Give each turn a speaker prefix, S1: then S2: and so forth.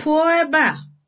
S1: pụọ ebe a